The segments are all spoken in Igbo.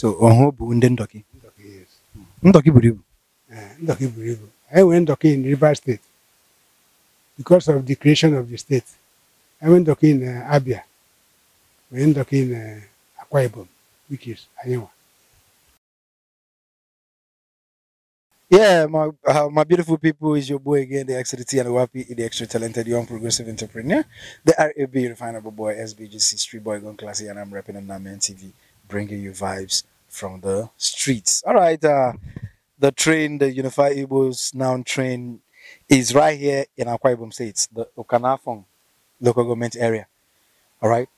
so ọhụụ bụ ndị ndọkị ndọkị buru ibu eh, ndọkị buru ibu anyị in Rivers State because of the creation of the state I went ndọkị in eh, Abia nwere ndọkị in eh, Akwa Ibom which is anyịnwa Yeah, my, uh, my beautiful people, is your boy again, the extra T and Wapi, the extra talented young progressive entrepreneur, the RAB refinable boy, SBGC street boy, gone classy, and I'm rapping on Naman TV bringing you vibes from the streets. All right, uh, the train, the Unified Igbos now train is right here in Akwa Ibom State, the Okanafong local government area. All right,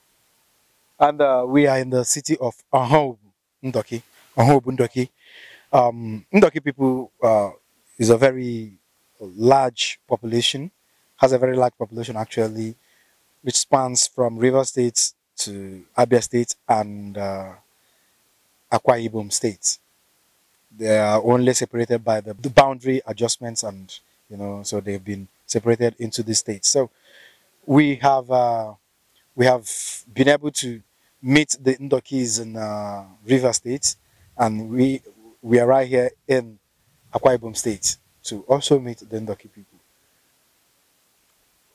and uh, we are in the city of Ahob Ndoki. Ahob Ndoki. Um, Ndoki people uh, is a very large population, has a very large population actually, which spans from River State to Abia State and uh, Akwa Ibom They are only separated by the, boundary adjustments and, you know, so they've been separated into the states. So we have, uh, we have been able to meet the Ndokis in uh, River State and we, we are right here in Akwa Ibom State to also meet the Ndoki people,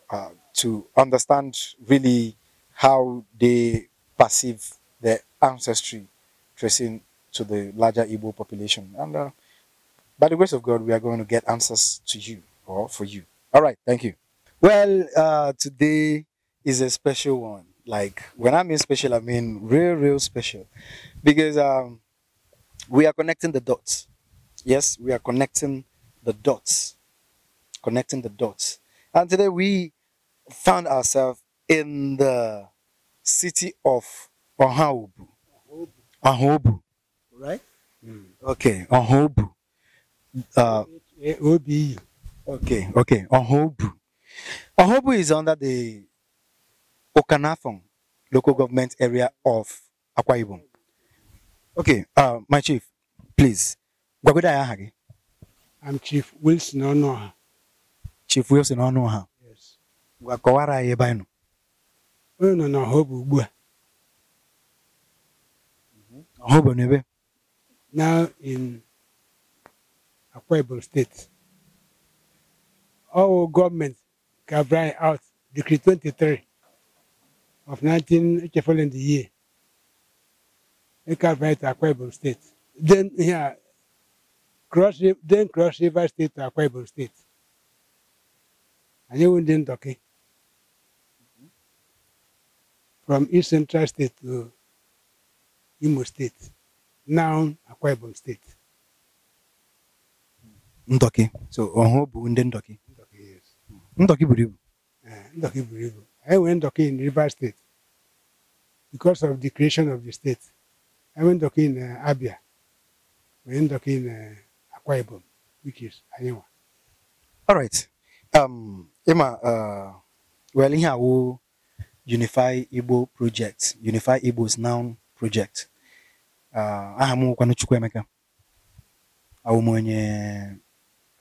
uh, to understand really how they perceive their ancestry tracing to the larger Igbo population. And uh, by the grace of God, we are going to get answers to you or for you. All right, thank you. Well, uh, today is a special one. Like when I mean special, I mean real, real special, because um, we are connecting the dots. Yes, we are connecting the dots, connecting the dots. And today we found ourselves in the city of Ohaubu. Ahobu. Right? Mm. Okay, Ahobu. Uh, O-B-U. Okay, okay, Ahobu. Ahobu is under the Okanafong local government area of Akwa Ibom. Okay, uh, my chief, please. I'm Chief Wilson Onoha. Chief Wilson Onoha. Yes. Gwakọwara anyị ebe anyị nọ. Onye nọ na Ahobu ugbu a. now in Akwa states, State. Our government bring out Decree 23 of 19 following the year. It carved out to Ibom State. Then here, yeah, cross, then cross River State to Akwa states. State. And you wouldn't okay. Eh? Mm-hmm. From East Central State to Imo State now Akwa Ibom State. Ndoki so ọhụụ bụ ndị yes Ndoki buru ibu eh, Ndoki buru ibu anyị nwere Ndọki in Rivers state because of the creation of the state anyị nwere Ndọki in eh, Abia nwere Ndọki in eh, Akwa Ibom which is anyị all right um uh, well ihe awụ Unify Igbo project Unify Igbo's now project ah, aha m nwekwanụ Chukwuemeka emeka m onye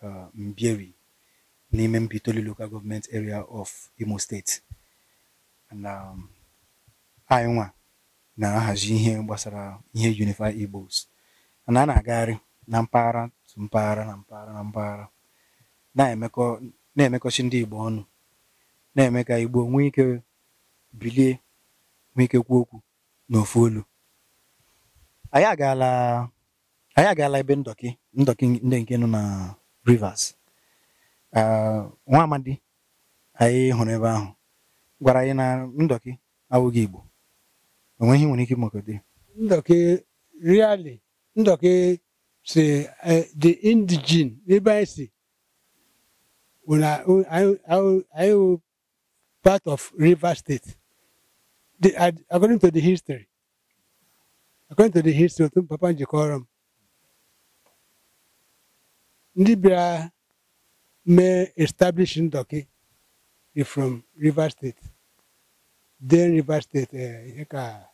ah, Mbieri n'ime Mbitoli local government area of Imo state na um, anyị na-ahazi ihe gbasara ihe Unify Igbos na a na-agagharị na mpaghara tụ mpaghara na mpaghara na mpaghara na-emekọchi ndị Igbo ọnụ na-eme ka Igbo nwee ike bilie nwee ike kwuo okwu n'ofu olu anyị agaala anyị agaala ebe ndọki ndọki ndị nke nọ na Rivers nwa amadi anyị hụrụ ebe ahụ gwara anyị na ndọki awụghị Igbo onweghị nwere ike ịmakọta ndọki really ndọki si e, the indigen ebe anyị si anyị part of river State according to the history according to the history of papa ji kọrọ m ndị bịara mee Ndoki from Rivers State then Rivers State ihe eh, ka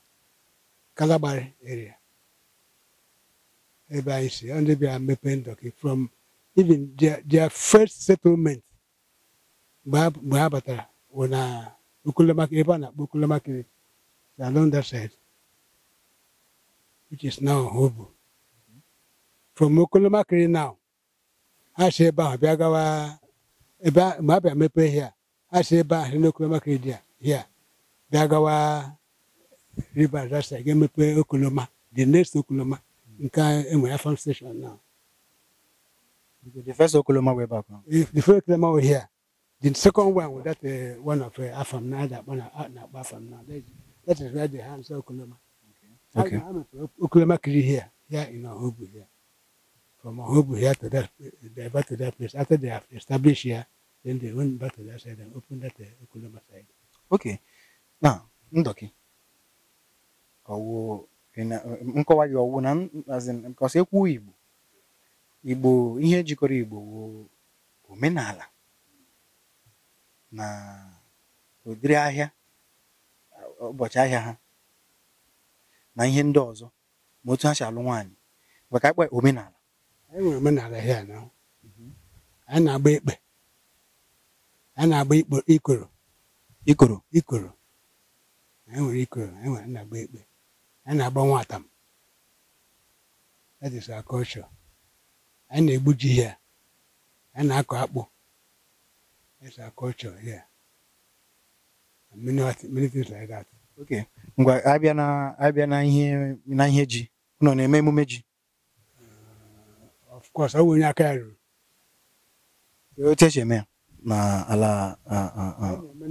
area ebe anyị si Ndoki from even their, their first settlement mgbe were uh, na Okolemaka ebe eh, na-akpọ Okolemakiri along that side which is now hobo From Okolomakiri now, a si ebe ahụ bịa gawa ebe ma abịa mepe hia a si ebe ahụ n'Okolomakiri dị hia bịa gawa Rivers that side ga Okoloma the next Okoloma nke enwe ya station now. The first Okoloma way back. If the first Okoloma were here, the second one was that uh, one of uh, Afam now that one uh, Afam now. That, is where the hands Okoloma. Okay. Okay, here, here in here. From here to that, they back to that place. After they have established here, then they went back to that side and opened that uh, side. Okay. Now, Ndoki. nkọwa gị ọwụ na nkọsi ekwu Igbo Igbo ihe jikọrọ Igbo wụ omenala na udiri ahịa ụbọchị ahịa ha na ihe mhm. ndị ọzọ ma otu ha si alụ nwaanyị maka akpa omenala anyị nwere omenala ihe na anyị na-agba ikpe anyị na-agba ikoro ikoro ikoro anyị nwere ikoro anyị nwere na-agba ikpe anyị na-agba nwatam that is our anyị na-egbu ji na-akọ akpụ that oke ngwa abịa na abịa na ihe na ihe ji nọ na-eme emume ji of course ọ bụ onye aka ya ruru otu esi eme ya na ala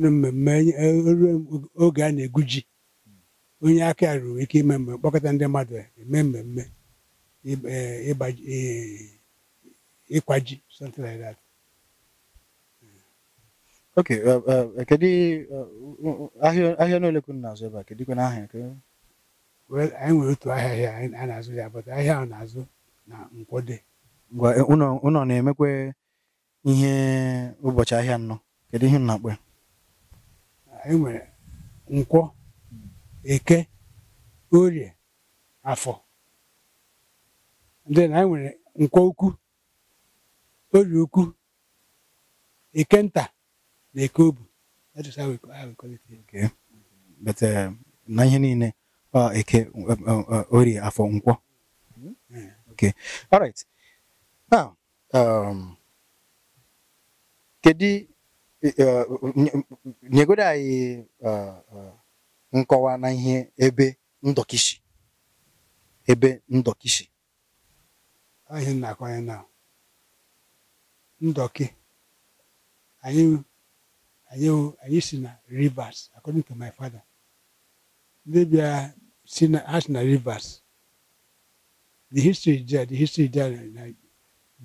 mmemme e, e, oge a na-egwu ji onye aka ya ruru ike ime mmemme kpọkọta ndị mmadụ eme mmemme e, ịkwa ji something like that oke kedu ahịa n'ole ka na-azụ ebe a kedụkwa na ahịa anyị eh, nwere otu ahịa ahịa a na-azụ ya bụta ahịa ahụ na-azụ na nkwụ nkwode ụnọ na-emekwa ihe ụbọchị ahịa nnọ kedu ihe nna akpọ ya anyị nwere nkwụ eke orie afọ ndị na anyị nwere nkwọ ukwu orie ukwu eke nta na-eke obu na ihe niile eke orie afọ nkwọ okay all right now um kedi uh, nyegodo uh, uh, anyị nkọwa na ihe ebe ndọkishi ebe ndọkishi ahịa na-akọnye na ndọki anyị I used to rivers, according to my father. Maybe are seen as rivers. The history is there, the history is there,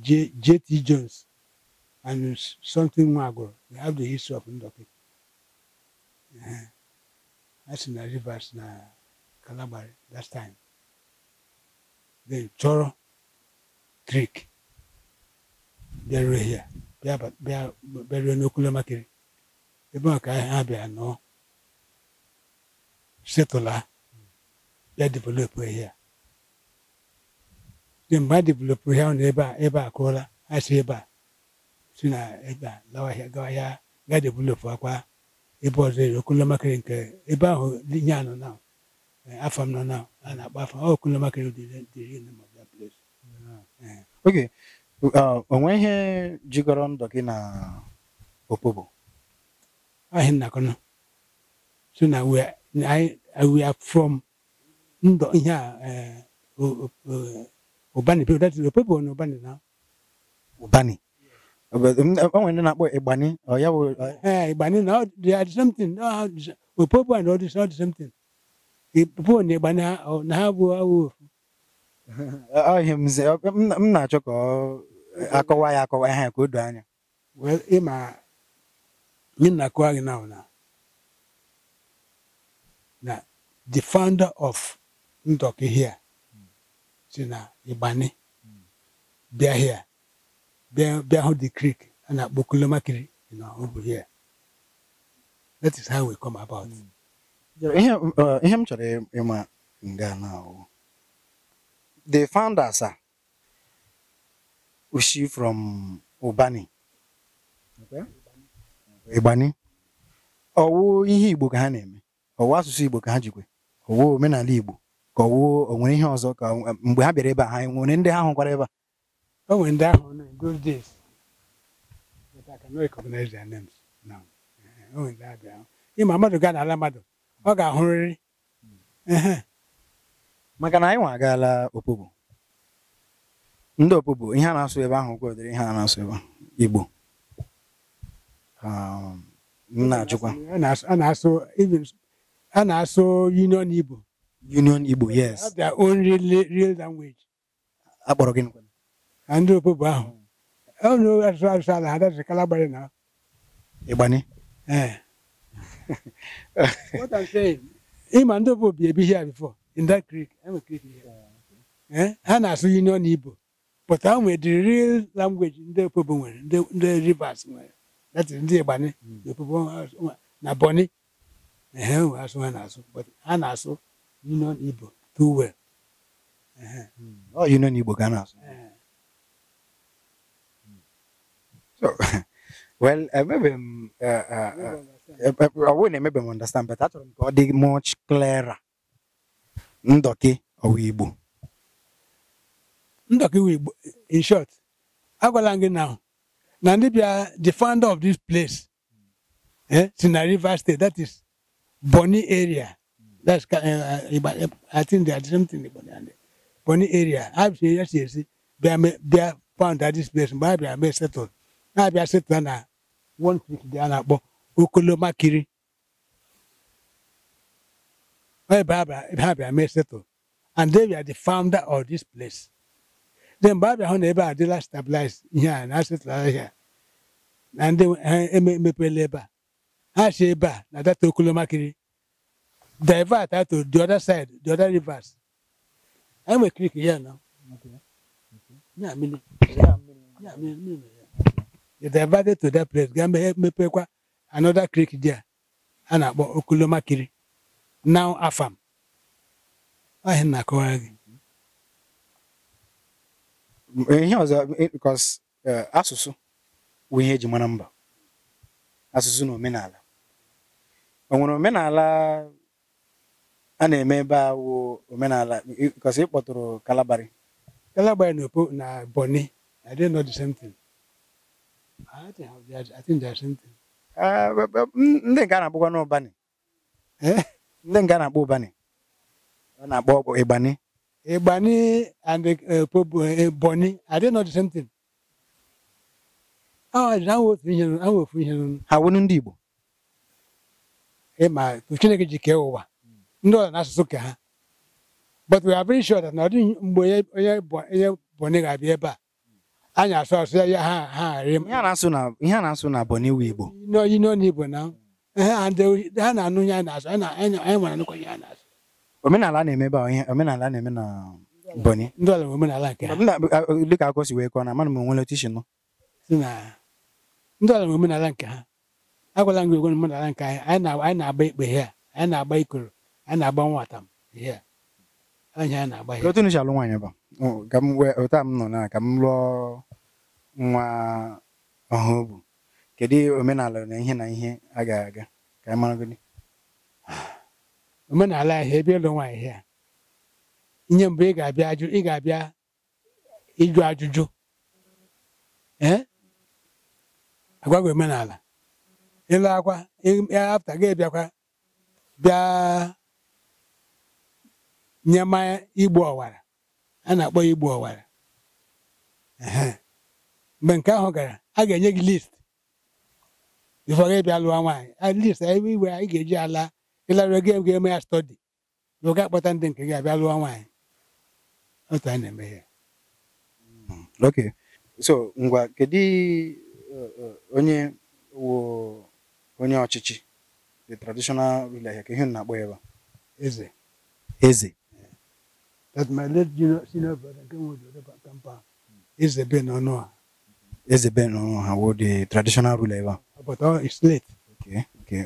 J J.T. Jones and something Mago. They have the history of Ndoke. Uh, uh-huh. that's in rivers, in Calabari, that time. Then Choro, Creek. They were here. They are, they are, they are in Okulemakiri. ebe a ka ha bịa nọ setụla ya developụ ihe a dị mgbe a developụ ihe ahụ ebe a ebe a kụọla a si ebe a si na ebe a lawa ahịa gawa ahịa ga developụ akwa ebe ọzọ ere okolomakịrị nke ebe ahụ nye anọ na e, afọ m nọ na a na-akpọ afọ okolomakịrị dịrị na place. oge uh, onwe ihe jigọrọ ndụ gị na okpobo. ahin na kono so na we i we are from ndo nya eh obani people that the people no obani na obani mm, eh, when na boy ebani or ya eh, eh ebani now they are something no we people and all this not something people ne ebani na have awu ahim ze m mm, mm, na-achọ ka eh, akọwa ya akọwa ihe ka o doo anya well ịma nyi nakuagi naona na the founder of Ndoki here si na Igbani bịa here bịa bịa hụ the creek a na-akpọ Kulomakiri you know, over here that is how we come about hmm. ihe uh, ihe m chọrọ ịma nga na ahụ the founders are, a ushi from Ubani okay. ịgbani ọwụ ihe Igbo ka ha na-eme ọwụ asụsụ Igbo ka ha jikwe ọwụ omenala Igbo ka ọwụ o nwere ihe ọzọ ka mgbe ha bịara ebe a ha e nwere ndị ha hụkwara ebe a o ndị ahụ na those days but I cannot recognize their names now o ndị ha bịara ịma mmadụ gaa n'ala mmadụ ọ ga-ahụrịrị maka na anyị nwa agaala opobo ndị opobo ihe a na-asụ ebe ahụ kwadoro ihe a na-asụ ebe Igbo Um, na-ajụkwa a na-asụ union igbo union igbo yes their own real, real language akpọrọ gị ndị opobo ahụ hmm. onye oh, asụsụ asụsụ ala ha dasị kala na ịgbani eh. what i'm saying ịma ndị opobo bi ebi here before in that creek hmm. eh? ha na-asụ union igbo but ha nwere the real ndị opobo nwere ndị rivers ya tiri ndị Igbani n'opupu hmm. na Bọni ehe asụ ha na-asụ ha na-asụ Union Igbo too well ọ hmm. oh, Union Igbo ka a na-asụ well emebe m ọwụ na-emebe m understand but achọrọ m ka ọ dị much clearer ndọki ọwụ Igbo ndọkị Igbo in short agwala m gị na Nandibia, the founder of this place, eh, Sina River State, that is Bonny area. That's uh, I think they are something in Bonny and Bonny area. I've seen yes, yes, they are they are found at this place, but I may settle. I be settled na one week they are but Okoloma Kiri. Well, Baba, Baba, I may settle. And they are the founder of this place. Ndị mgbe abịa hụ na ebe a dịla stabilize ihe a na-asịtụla ya na ndị emepela ebe a ha si ebe a na data okolomakiri divert ato the other side the other rivers anyị nwere krik ya nọ ya mmiri ya mmiri the divert to that place ga mepekwa another creek there a na-akpọ okolomakiri now afam ọhịa na-akọwara gị ihe ọzọ because eh, asụsụ bụ ihe eji mara mba asụsụ na omenala o nwere omenala a na-eme ebe a wụ omenala because ịkpọtụrụ kpọtụrụ kalabari kalabari na opo na boni I didn't know the same thing I think eh, ndị nke a na-akpọkwa n'ụbani eh? ndị nke a na-akpọ ụbani ọ na-akpọ ịgbani Igbani and uh, Bonny, I didn't know the same thing. Ah I nwefu ihe na nwefu ihe nụnụ. Ha I ndị Igbo. Ịma Chineke ji kee ụwa. Ndị ọzọ asụsụ ka ha. But we are very sure that na ọ mgbe eh, eh, onye eh, Bonny ga-abịa ebe a. Anyị asụ asụ ya ha ha a asụ na Bonny wu Igbo. N'oyi n'onu Igbo na ha na Anyị omenala na-emebe ihe omenala na-eme na Bọnị ndị ọla omenala nke ha dịka akọ si wee kọọ na mana m onwere tishin ndị ọla omenala nke ha agwala m gị ogwe omenala nke anyị anyị na-agba ikpe ihe a anyị na-agba ikoro anyị na-agba nwata m ihe a otu nụcha alụ nwaanyị bụ ka m wee ụta m nọ na ka m lụọ nwa ọhụụ bụ kedu omenala na ihe na ihe a ga-aga ka anyị mara gị omenala ahịa ebe ịlụ nwaanyị ihe mbụ ị ga-abịa ị ga-abịa ịjụ ajụjụ agwagwa omenala ịlụ akwa afta gị bịakwa bịa nye mmanya igbu ọwara a na-akpọ igbu ọwara mgbe nke ahụ gara a ga-enye gị list bifọ gị bịa lụọ nwaanyị list ebe anyị ga-eji ala ịlarụọ gị ga-eme ya stọdi na ụga akpọta ndị nke gị abịa lụọ nwaanyị otu a na-eme ya hmm, okay so ngwa kedu uh, uh, onye wo onye ọchịchị the traditional ruler ka ihe na-akpọ ya ebe eze eze that my late senior brother nke nwe kampa eze be n'ọnụ ha eze be n'ọnụ ha wo the traditional ruler ebe but all uh, is late okay Ah, okay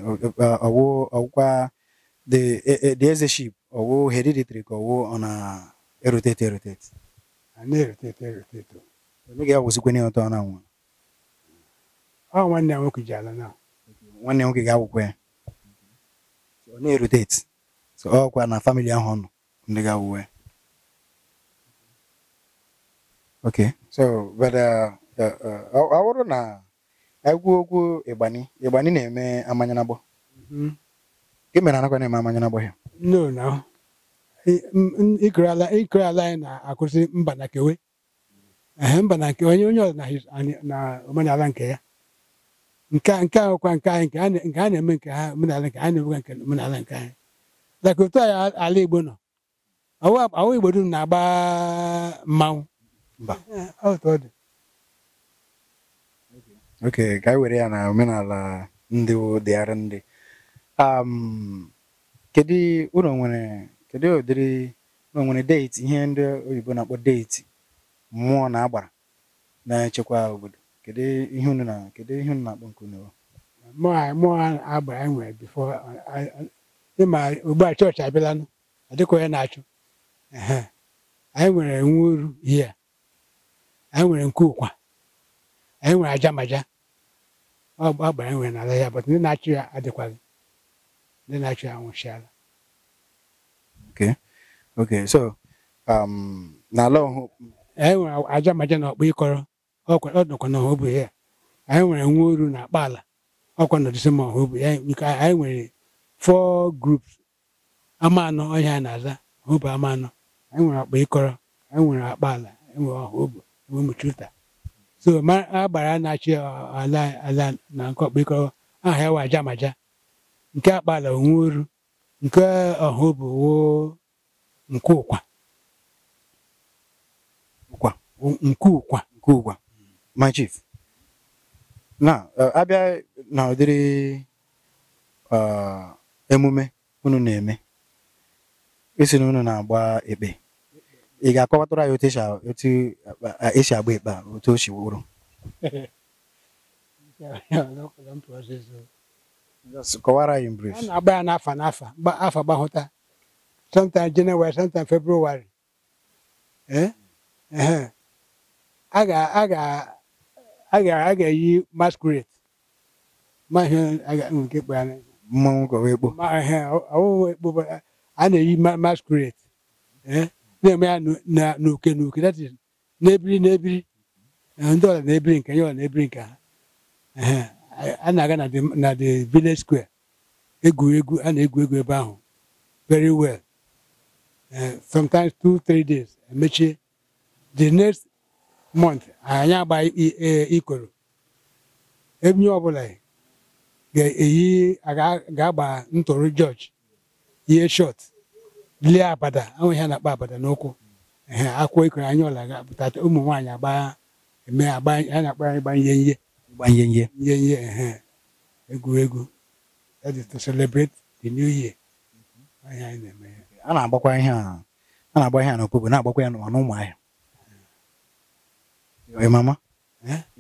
ọwụ ọwụkwa the the eze-ship hereditary ka ọ na-erotate erotate oh, a na uh, uh, uh, na nwa nwanne nwoke ji ala na nwanne nwoke ga-awụkwa ya ọ na ọkwa ahụ ọ na egwu ogwu ịgbani ịgbani na-eme amanya n'agbọ mm-hmm. gị mere anakwa na-eme amanya n'agbọ ya no na ikere ala anyị na akwụsị mba na kewe mba na kewe onye onye ọzọ na omenala nke ya nke nke a ahụkwa nke anyị nke a na-eme nke ha omenala nke anyị na-emekwa nke omenala nke anyị daka otu anyị ala Igbo nọ ọwụ Igbo dum na-agba mmanwụ oke ka anyị e were ya na omenala ndị dịgharị ndị um, kedu ụlọ nwere kedu ụdịrị ụlọ nwere deeti ihe ndị oyibo na-akpọ deeti mmụọ na agbara na-echekwa obodo kedu ihe unu na kedu ihe unu na-akpọ nke unu mmụọ agbara anyị e nwere bifo ịma ugbu a chọọchị abịalanụ ọ dịka onye na-achụ anyị nwere nwa uru ihe anyị nwere nke ụkwa anyị nwere aja maja ọgbara enwe n'ala ya but ndị na-achị ya adịkwaghị ndị na-achị ya nwụchiala okay okay so um, n'ala ọhụụ anyị e nwere aja maja na ọkpa ịkọrọ ọ nọkwa na ọhụbụ ya anyị nwere nwa oru na akpa ala ọkwa na disemba ọhụbụ ya anyị nwere four groups ama anọ ọhịa na-aza ọhụbụ ama anọ anyị nwere akpa ịkọrọ anyị nwere akpa ala enwe ọhụbụ enwe mụchuta so a gbara na-achị ala ala na nke ọkpụkọrọ aha ya wa maja nke akpala onwe oru nke ọha bụ nke ụkwa nke ụkwa nke ụkwa my chief uh, na abịa na ụdịrị uh, emume unu na-eme isi na unu na-agba ekpe ị ga-akọwatara anyị otu otu esi agba ikpe a otu o si wụrụ kọwara anyị brief a na-agba ya n'afa n'afa afa gbahụta sometime January sometime February eh? a ga-eyi masquerade mmanwụ ekpo a na-eyi masquerade eh? na-eme ya n'oke n'oke that is na-ebiri ndị ọla na-ebiri nke ya ọla na-ebiri nke ha a na-aga na the village square egwuregwu a na-egwu egwu ebe ahụ very well sometimes two three days emechie the next month anyị agba e, ikoro ebinye ọbụla ga-eyi ga-agba ntụrụ george ihe short lie abada ahụ ihe na-akpa abada n'ụkwụ ehe akwụkwọ ikoro anya ọla ga-apụta ụmụ nwaanyị agba eme agba na-akpọ anyị gbanye ihe gbanye ihe nye ihe ehe egwuregwu that to celebrate the new year mhm. anyị na-eme ya a na-agbakwa ihe a na-agba ihe a n'okpukpe na-agbakwa ya n'ụmụ ahịa mama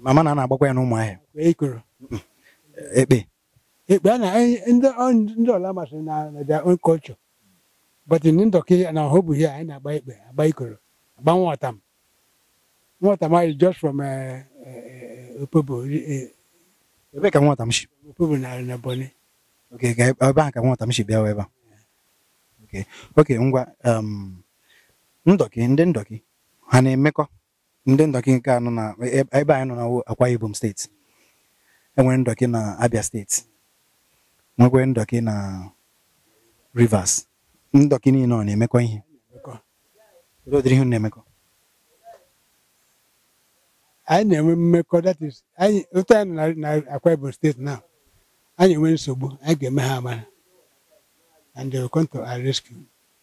mama na a na-agbakwa ya n'ụmụ ahịa Ikoro, ekpe ekpe a na e, ndị ọla masịrị na their own culture but ndị ndọka na ọhụ bụ anyị na-agba ikpe agba ikoro agba nwata m nwata m anyị just from uh, uh, uh, opobo ebe ka nwata m si opobo na na Ebonyi okay ebe a ka nwata m si bịa ebe a okay okay ngwa ndọki ndị ndọki ha na-emekọ ndị ndọki nke anọ na e, e, ebe anyị nọ na Akwa Ibom steeti enwere ndọki na Abia steeti nwekwere ndọki na Rivers ndọkị niile ọ na-emekọ ihe ihe na-emekọ anyị na-enwe mmekọ that is anyị otu anyị na na Akwa Ibom steeti na anyị enwe nsogbu anyị ga-eme ha amara and they will come to our rescue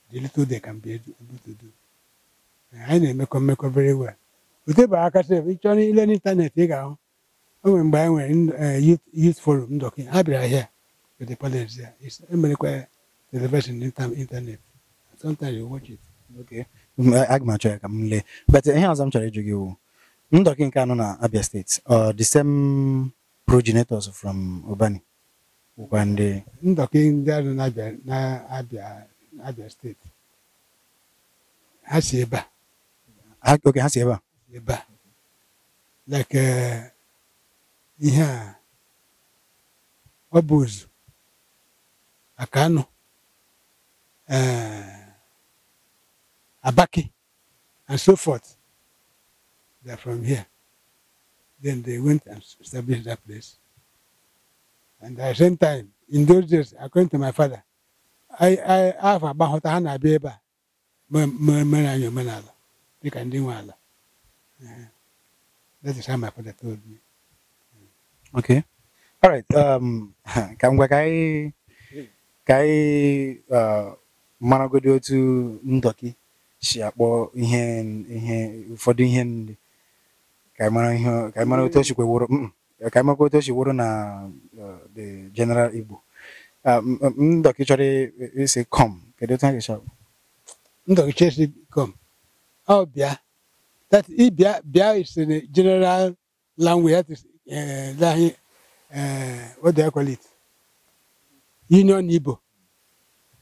the little they can be able to do anyị na-emekọ mmekọ very well otebe aka sef ị chọrọ ile n'ịntanetị ị ga-ahụ o nwere mgbe anyị nwere eh, youth forum ndọkị ha bịara here with the police emere e kwa ya television internet sometimes you watch it okay aga m achọ ya ka m lee but ihe ọzọ m chọrọ ịjụ gị wụ ndọkị nke anụ na Abia steeti or uh, the same progenitors from Obani bụkwa ndị ndọkị ndị anọ na Abia steeti ha si ebe a oke ha si ebe a ebe a like ihe uh, a ọ bụ ozu maka anụ uh, Abaki, and so forth. They're from here. Then they went and established that place. And at the same time, in those days, according to my father, I I have about hota ha na-abịa ebe a mere anyị omenala dịka do nwe That is how my father told me. Okay. All right. Um, ka ngwa ka maragodi otu ndọki si akpọ ihe ihe ụfọdụ ihe nri ka anyị otu o si kweworo mm, otu o si na uh, the general Igbo uh, ndọki chọrọ isi kọm kedu otu ha ga ndọki chọrọ isi kọm ọ bịa that ịbịa bịa isi general language that is uh, uh what do call it union Igbo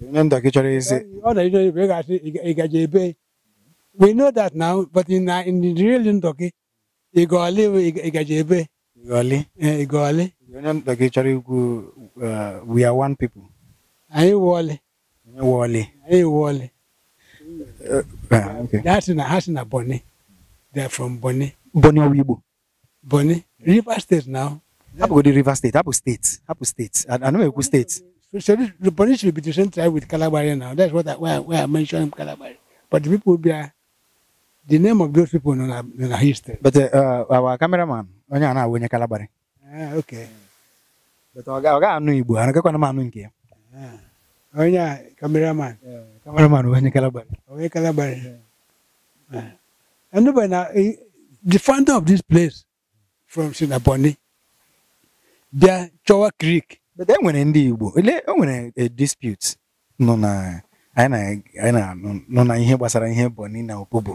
Nenda Kicharize. Igajebe. We know that now, but in uh, in the real Ndoki, Igoli, Igajebe. Igoli. Igoli. Nenda Kichari, we are one people. Aye, Wally. Wally. Aye, Wally. That's in a house in a They are from Bonnie. Bonnie Owibo. Bonnie. River State now. Abu River State, Abu State, Abu State. I know Abu State. So the police will be the same tribe with Calabari now. That's what I, why, why I mentioned Calabari. But the people uh, the name of those people in our, in our history. But uh, uh our cameraman, onye oh, ana awonye Calabari. Ah, okay. But oga a anu Igbo, anaka kwa na anu nke ya. Onye cameraman. Yeah, cameraman onye Calabari. Onye oh, Calabari. Ah. and nobody now, eh, the founder of this place from Sinaboni, there Chowa Creek. e nwere ndị Igbo ele o nwere a eh, dispute nọ na anyị na-anọ na ihe gbasara ihe Bọni na Opobo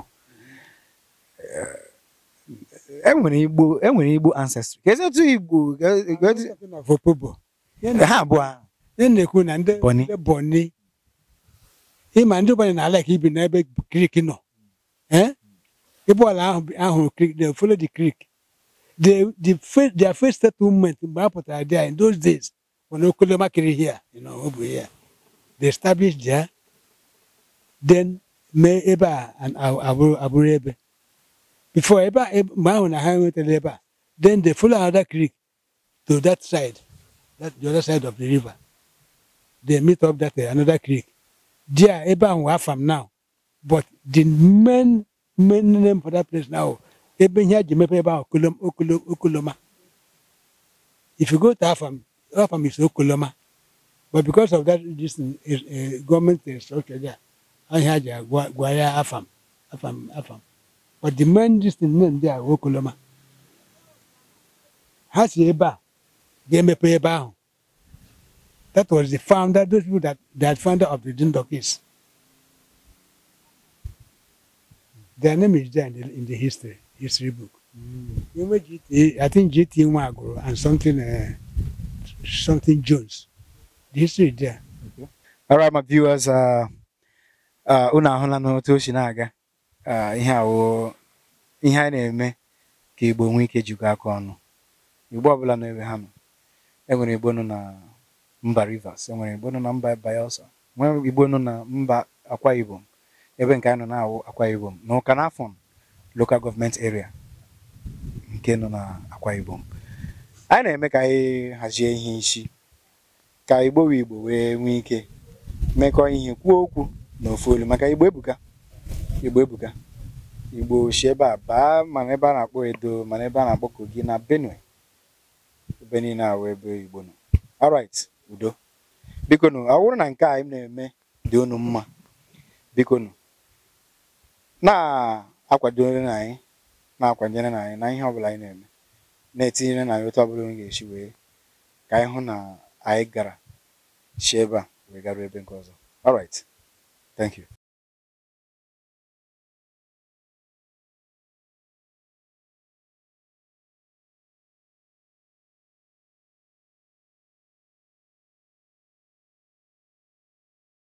eh, e nwere Igbo e nwere Igbo ancestry ka ezi otu Igbo Opobo ha abụọ ihe na-ekwu na ndị Bọni ịma ndị Bọni na-ala ka ibi n'ebe krik nọ ịbụọla eh? ahụ krik they follow the krik the the first their first settlement mgbe a pụtara there in those days when Okule Makiri here, you know, over here, they established there. Then me Eba and Abu Abu Rebe. Before Eba, Mahon and went to Eba. Then they follow another creek to that side, that the other side of the river. They meet up that uh, another creek. There Eba and from now. But the main main name for that place now, Ebe Nyaji Mepe Eba Okuloma. If you go to Afam, farm is Okoloma. But because of that, this is, uh, government structure there, I had a Guaya Afam, Afam, Afam. But the main distant name there, Okoloma. Ha si ebe a, ga-emepe ebe That was the founder, those people that, that founder of the Dindok is. Their name is there in the, in the history, history book. Mm. I think GT Nwaguru and something uh, something Jones. This is there. Okay. All right, my viewers, uh, uh, unu ahụla n'otu o si na-aga uh, ihe awụ ihe a na-eme ka Igbo nwee ike jikọ aka ọnụ Igbo ọbụla n'ebe ha nọ enwere Igbo nọ na mba Rivers enwere Igbo nọ na mba Bayelsa e nwere Igbo nọ na mba Akwa Ibom ebe nke a nọ na-awụ Akwa Ibom na Ụka Nafọn local government area nke nọ na Akwa Ibom anyị na-eme ka anyị hazie ihe isi ka igbo igbo wee nwee ike mekọọ ihe kwuo okwu na ofu maka igbo ebuga igbo ebuka igbo si ebe a baa mana ebe a na-akpọ edo mana ebe a na-akpọ kogi na benue ebe niile ahụ ebe igbo nọ alright udo biko ọ bụrụ na nke anyị na-eme dị unu mma biko na-akwadore na anyị na-akwanyere anyị na ihe ọbụla anyị na-eme na-etinyere na ya ọbụla onye ga wee ka anyị hụ na anyị gara si ebe a wee garuo ebe nke ọzọ alright thank you